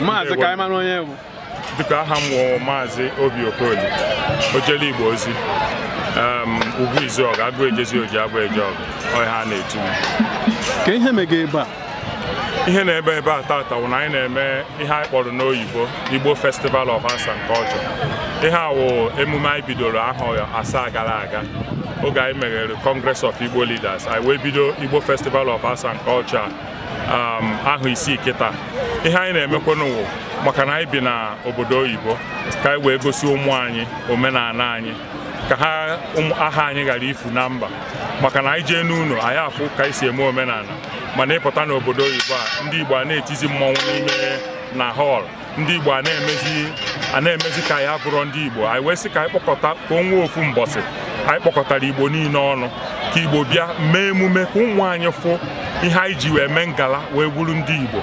maazị ka anyị onye bụ dịka aha m wụ maazị obi okoli ojele igbo ozi ugwu izuọgụ agụ ejezi oji agụ eje ọgụ ọha na-etu ka ihe mega ebe a ihe na-ebe ebe a tata wụ na anyị na-eme ihe anyị kpọrọ n'oyibo igbo festival of Asa nke culture ihe a wụ emume anyị bidoro ahọ asaa gara aga oge anyị meghere congress of igbo leaders anyị wee bido igbo festival of Asa nke culture ahụ isi kịta ihe anyị na-emekwanụ maka na anyị bi na obodo oyibo ka anyị wee gosi ụmụ anyị omenala anyị ka ha aha anyị ghara ifu na mba maka na anyị jee n'ụlọ anyị afụ ka anyị si eme omenala mana ịpụta n'obodo oyibo a ndị Igbo a na-etizi mmọnwụ n'ime na họl ndị Igbo a na-emezi ka ya bụrụ ndị Igbo anyị wee sị ka anyị kpọkọta ka onwe ofu mbọsị anyị kpọkọtara Igbo niile ọnụ ka Igbo bịa mee emume ka ụmụ anyị fụ ihe anyị ji wee mee ngala wee wuru ndị Igbo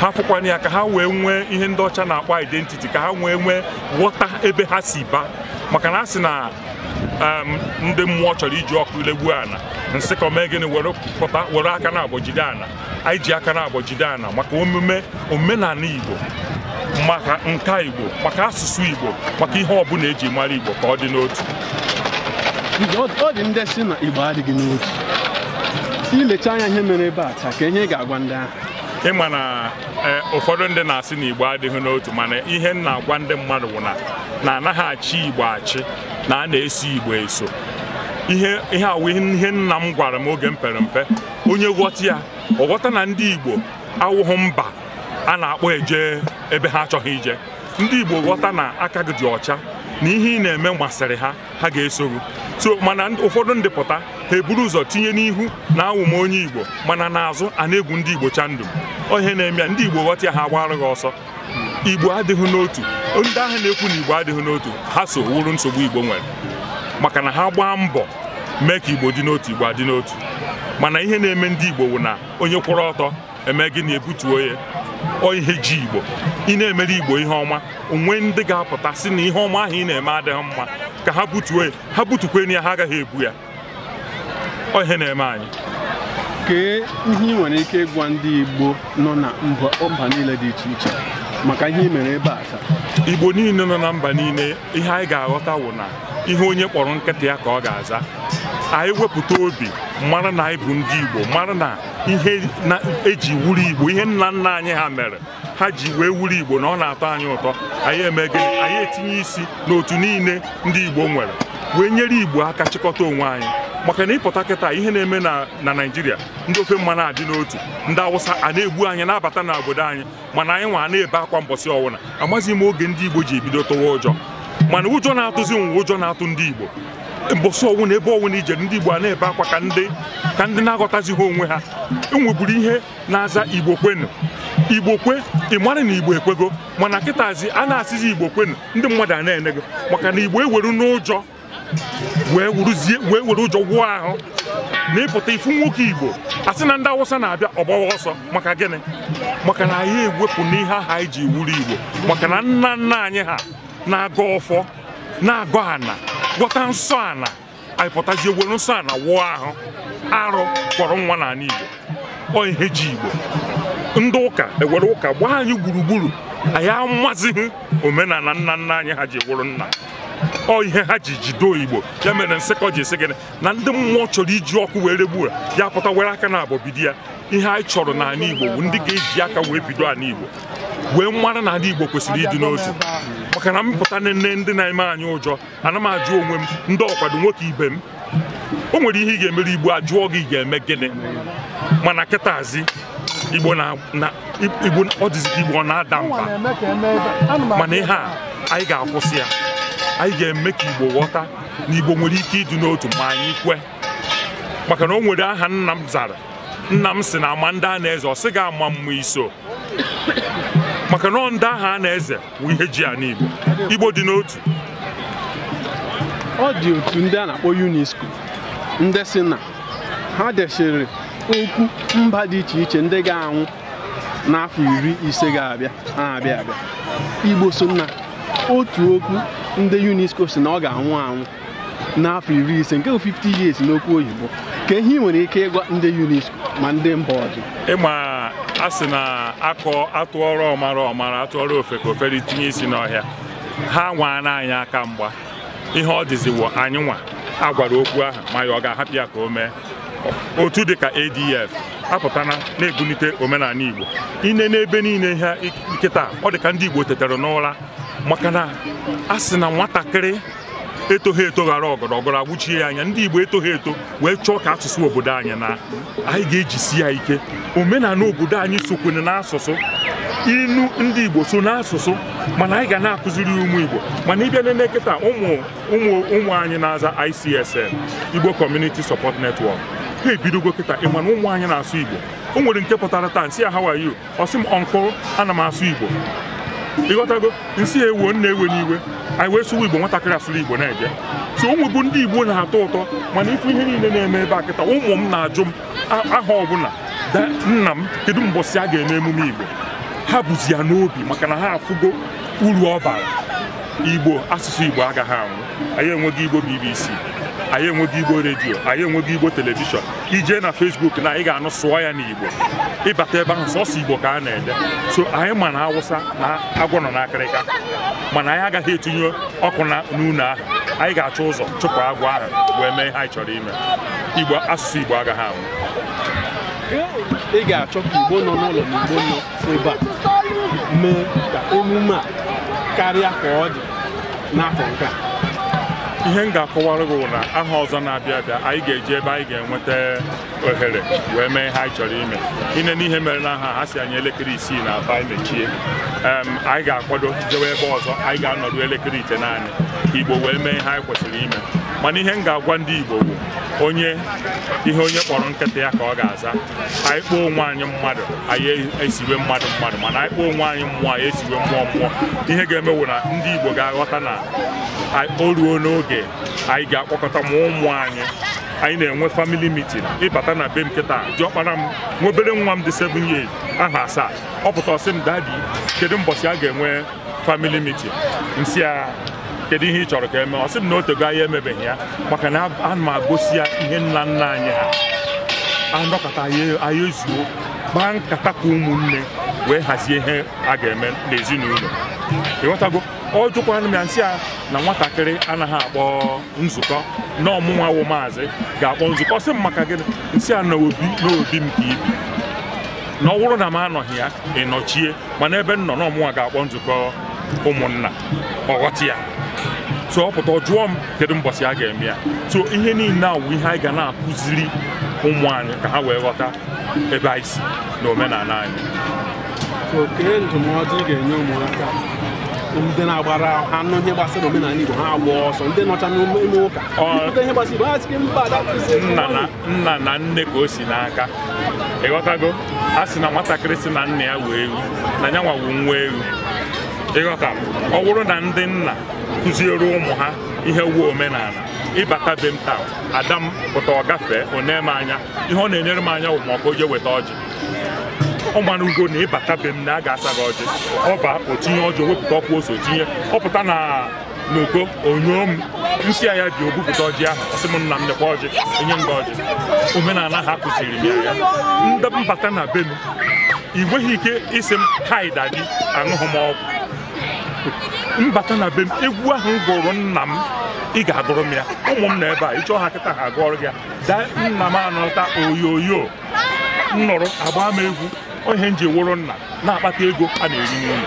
ha fụkwana ya ka ha wee nwee ihe ndị ọcha na-akpọ identiti ka ha wee nwee ghọta ebe ha si ba maka na asị na ndị mmụọ chọrọ iji ọkụ ilegbu ana nsị ka omee gịnị were pụta were aka na-agbọjide ana anyị ji aka na-agbọjide ana maka omume omenala Igbo maka nka Igbo maka asụsụ Igbo maka ihe ọbụla eji mara Igbo ka ọ dị n'otu ọ dị ndị si na Igbo adịghị n'otu ilecha anya ihe mere ebe a taa ka ihe ga-agwa ndị ahụ ịma na e, ụfọdụ ndị na-asị na igbo adịghị n'otu mana ihe m na-agwa ndị mmadụ bụ na na anaghị achị igbo achị na a na-eso igbo eso ihe awụ ihe nna m gwara m oge m pere mpe onye ghọta ya ọ ghọta na ndị igbo awụghị mba a na-akpọ eje ebe ha achọghị ije ndị igbo ghọta na aka gị dị ọcha na ihe ị na-eme masịrị ha ha ga-eso gị so mana ụfọdụ ndị pụta eburu ụzọ tinye n'ihu na awụm onye igbo mana n'azụ a na-egwu ndị igbo chandụ ohe na-eme ndị igbo ghọta ya ha gbarụ gị ọsọ igbo adịghị n'otu ndị ahụ na-ekwu na igbo adịghị n'otu ha so wuru nsogbu igbo nwere maka na ha gbaa mbọ mee ka igbo dị n'otu igbo adị n'otu mana ihe na-eme ndị igbo wụ na onye kwụrụ ọtọ eme na ebutuo ya ọ ihe ji igbo ị na-emere igbo ihe ọma onwe ndị ga-apụta si na ihe ọma ahụ ị na-eme adịghị mma ka ha butuo ya ha butukwe ya ha agaghị ebu ya ihe na-eme anyị kee ihe ị nwere ike ịgwa ndị Igbo nọ na mba niile dị iche iche maka ihe ị mere ebe a Igbo niile nọ na mba niile ihe anyị ga-aghọta wụ na ihe onye kpọrọ nkịta ya ka ọ ga-aza anyị wepụta obi mara na anyị bụ ndị Igbo mara na ihe eji wuru igbo ihe nna nna anyị ha mere ha ji wee wuru igbo na ọ na-atọ anyị ụtọ anyị eme anyị etinye isi n'otu niile ndị igbo nwere wee nyere igbo aka chịkọta onwe anyị maka na ịpụta kịta ihe na-eme na na naijiria ndị ofe mmanụ adị n'otu ndị awụsa a na-egbu anyị na-abata obodo anyị mana anyị nwa na-ebe akwa mbọsị ọwụna amaghị m oge ndị igbo ji ebido tụwa ụjọ mana ụjọ na-atụzi nwa ụjọ na-atụ ndị igbo mbọsị ọnwụ na ebe ọnwụ na ije ndị Igbo a na-ebe akwa ka ndị ka ndị na-aghọtazighị onwe ha enweburu ihe na-aza Igbo kwenu Igbo kwe ị mara na Igbo ekwego mana kịtazi a na-asịzi Igbo kwenu ndị mmadụ a na-ene gị maka na Igbo eweru n'ụjọ wee were ụjọ gwụọ ahụ na ịpụta ifu nwoke Igbo asị na ndị Awụsa na-abịa ọgbawa ọsọ maka gịnị maka na ya ewepụ n'ihe aha iji ji wuru Igbo maka na nna nna anyị ha na-agọ ọfọ na-agọ ana gwọta nsọ ala anyị pụtazie ewere nsọ ala wụọ ahụ arụ kpọrọ nwa n'ala Igbo ọ ihe ji Igbo ndị ụka ewere ụka gbaa anyị gburugburu anyị amazighị omenala nna nna anyị ha ji ewuru nna ọ ihe ha ji jido igbo ya mere ọ ji esi gịnị na ndị mmụọ chọrọ iji ọkụ wee regbu ya pụta were aka na abọbidi ya ihe anyị chọrọ n'ala igbo bụ ndị ga-eji aka wee bido ala igbo wee mara na ala igbo kwesịrị ịdị n'otu maka na mpụta nne ndị na-eme anyị ụjọ ana m ajụ onwe m ndị ọkwado nwoke ibe m o nwere ihe ị ga-emere igbo ajụọ gị ga-eme gịnị mana kịtazi igbo ọ dịzị igbo ọ na-ada mba mana ihe a anyị ga-akwụsị ya anyị ga-eme ka Igbo ghọta na Igbo nwere ike ịdị n'otu ma anyị kwe maka na o nwere aha nna m zara nna m si na ama ndị a na-eze ọ sị gị ama mma iso maka na ndị aha a na-eze bụ ihe ji ya n'Igbo Igbo dị n'otu ọ dị otu ndị a na-akpọ UNESCO ndị si na ha dechiri okwu mba dị iche iche ndị ga-anwụ n'afọ iri ise ga-abịa na-abịa abịa Igbo so nna otu okwu ndị UNESCO si na ọ ga-anwụ anwụ n'afọ iri ise nke 50 years n'okwu oyibo ka ihe ị nwere ike ịgwa ndị UNESCO ma ndị mba ọzọ ịma a sị na akọ atụọrọ ọmara ọmara atụọrọ ofe ka ofere tinye isi n'ọhịa ha nwaana anyị aka mgba ihe ọ dịziwo anyị nwa a gwara okwu ahụ ma ya ọ ga-ahapụ ya ka o mee otu dịka ADF apụtana na-ebulite omenala Igbo ine n'ebe niile ihe nkịta ọ dịka ndị Igbo tetere n'ụra maka na a sị na nwatakịrị etoghị eto ghara ọgọrọgọrọ agwụchie ya anya ndị Igbo etoghị eto wee chọọ ka asụsụ obodo anyị na anyị ga-ejisi ya ike omenala obodo anyị sokwene n'asụsụ inu ndị Igbo so n'asụsụ mana anyị ga na-akụziri ụmụ Igbo mana ịbịa n'ele kịta ụmụ ụmụ anyị na-aza ICSN Igbo Community Support Network ha ebidogo kịta ị mana ụmụ anyị na-asụ Igbo o nwere nke pụtara taa nsị ya how are you ọ m ọnkụ ana m asụ Igbo ịghọtago nsị ewuo nna ewe n'iwe anyị wee sụwa igbo nwatakịrị asụrụ igbo na-eje so ụmụ bụ ndị igbo na-atọ ụtọ mana ife ihe niile na-eme ebe a kịta ụmụ m na-ajụ m aha ọbụla nna m kedu mbọsi a ga-eme emume igbo ha bụzi ya n'obi maka na ha afụgo uru ọ bara igbo asụsụ igbo agaghị anwụ anyị enweghị igbo bbc anyị enweghị igbo redio anyị enweghị igbo telivishọn ijee na fesbuk na anyị ga-anụ sụọ ya n'igbo ịbata ebe ahụ sọsọ igbo ka a na-ede so anyị ma na awụsa na agwọ nọ n'akịrịka mana anyị agaghị etinye ọkụ na n'ụlọ ahụ anyị ga-achọ ụzọ chụpụ agwọ ahụ wee mee ihe anyị chọrọ ime igbo asụsụ igbo agaghị anwụ ị ga-achọ ka igbo nọ n'ụlọ na igbo nọ ebe a mee ka emume a karịa ka ọ dị n'afọ nke a ihe m ga-akọwara gị na aha ọzọ na-abịa abịa anyị ga-eji ebe anyị ga-enweta ohere wee mee ihe anyị chọrọ ime ine n'ihe mere na aha ha si anyị elekere isii na aba anyị mechie anyị ga-akwado jewe ebe ọzọ anyị ga-anọdụ elekere ite naanị Igbo wee mee ihe anyị kwesịrị ime mana ihe m ga-agwa ndị Igbo bụ onye ihe onye kpọrọ nkịta ya ka ọ ga-aza anyị kpọọ onwe anyị mmadụ anyị esiwe mmadụ mmadụ mana anyị kpọọ onwe anyị mmụọ anyị esiwe mmụọ mmụọ ihe ga-emewu na ndị Igbo ga-aghọta na o ruo n'oge anyị ga-akpọkọta ma ụmụ anyị anyị na-enwe famili mitin. ịbata na be m kịta ji m nwobere nwa m dị 7 years aha asaa ọ pụta ọsị m dadi kedu mbọchị a ga-enwe famili mitin. nsị a kedu ihe ị chọrọ ka eme ọsị m na otego anyị emebeghị ya maka na ana ma gosi ya ihe nna nna anyị ha anọkọta anyị zuo, gbaa nkata ka ụmụnne wee hazie ihe a ga-eme n'ezinụlọ ịghọtago ọ m ya nsị a na nwatakịrị anaghị akpọ nzukọ na ọmụnwa wụ maazị ga-akpọ nzukọ sị m maka gịnị nsị a na obi na obi m ka ibi na ọ bụrụ na m anọghị ya ị mana ebe m nọ na ọmụnwa ga-akpọ nzukọ ụmụnna ọghọta ya so ọ pụta jụọ m kedu mbọsị a ga-eme ya tụọ ihe niile a wụ ihe anyị ga na-akụziri ụmụ anyị ka ha wee ghọta ebe anyị si na omenala anyị ndị na-agbara anụ ihe gbasara omenala Igbo ha agba ọsọ ndị nọcha n'ime ụka ihe gbasara Igbo ha sị mba nna na nne ka o si n'aka ịghọtago a sị na nwatakịrị si na nna ya wee ewu na ya nwawu nwa ewu ịghọta ọ bụrụ na ndị nna kụziere ụmụ ha ihe wuo omenala ịbata be m taa ada m pụta ọ gafee o m anya ihe ọ na-enyere m anya wụ ma ọkụ je weta ọjị ọmana ugo na ịbata be m na a ga-asa gị ọjị ọba otinye ọjọ wepụta ọkwa ose tinye ọpụta na n'oko onyo m nsị a ya ji ogwupụta ọjị ahụ ọsị m nna m nekwa ọjị enye m ọjị omenala ha kụziri m ya ya mbata na be m ị nweghị ike ịsị m kaida gị aṅụghị m ọgwụ mbata na be m egwu ahụ gụrụ nna m ị ga-agụrụ m ya ụmụ m na ebe a ịchọọ ha kịta ha agụọrụ gị ya daa nna m anọta oyoyo nnụrụ agba m egwu Onye nji ji wụrụ nna na-akpata ego a na-eri n'ime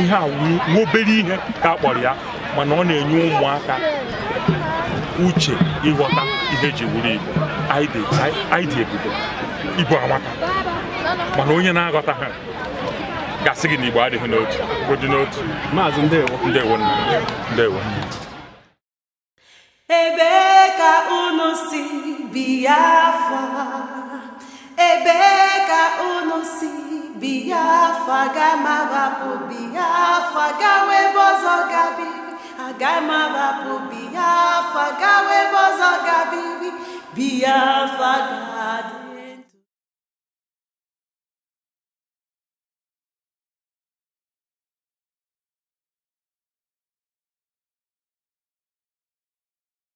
ihe a nwobere obere ihe ka a kpọrọ ya mana ọ na-enye ụmụaka uche ịghọta ihe e ji wuru igbo anyị dị ibu amaka mana onye na-aghọta ha gasị gị na igbo adịghị n'otu dị n'otu maazị ndewo ndewo ndewo ebe ka unu si ebe ka unu si Biafra we Biafra gawa ebe ọzọ gabiri agamawapụ Biafra gawa ebe ọzọ gabiri Biafra